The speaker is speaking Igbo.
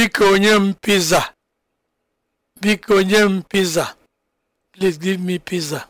Biko onye m pizza, Biko onye m pizza, Please give me pizza.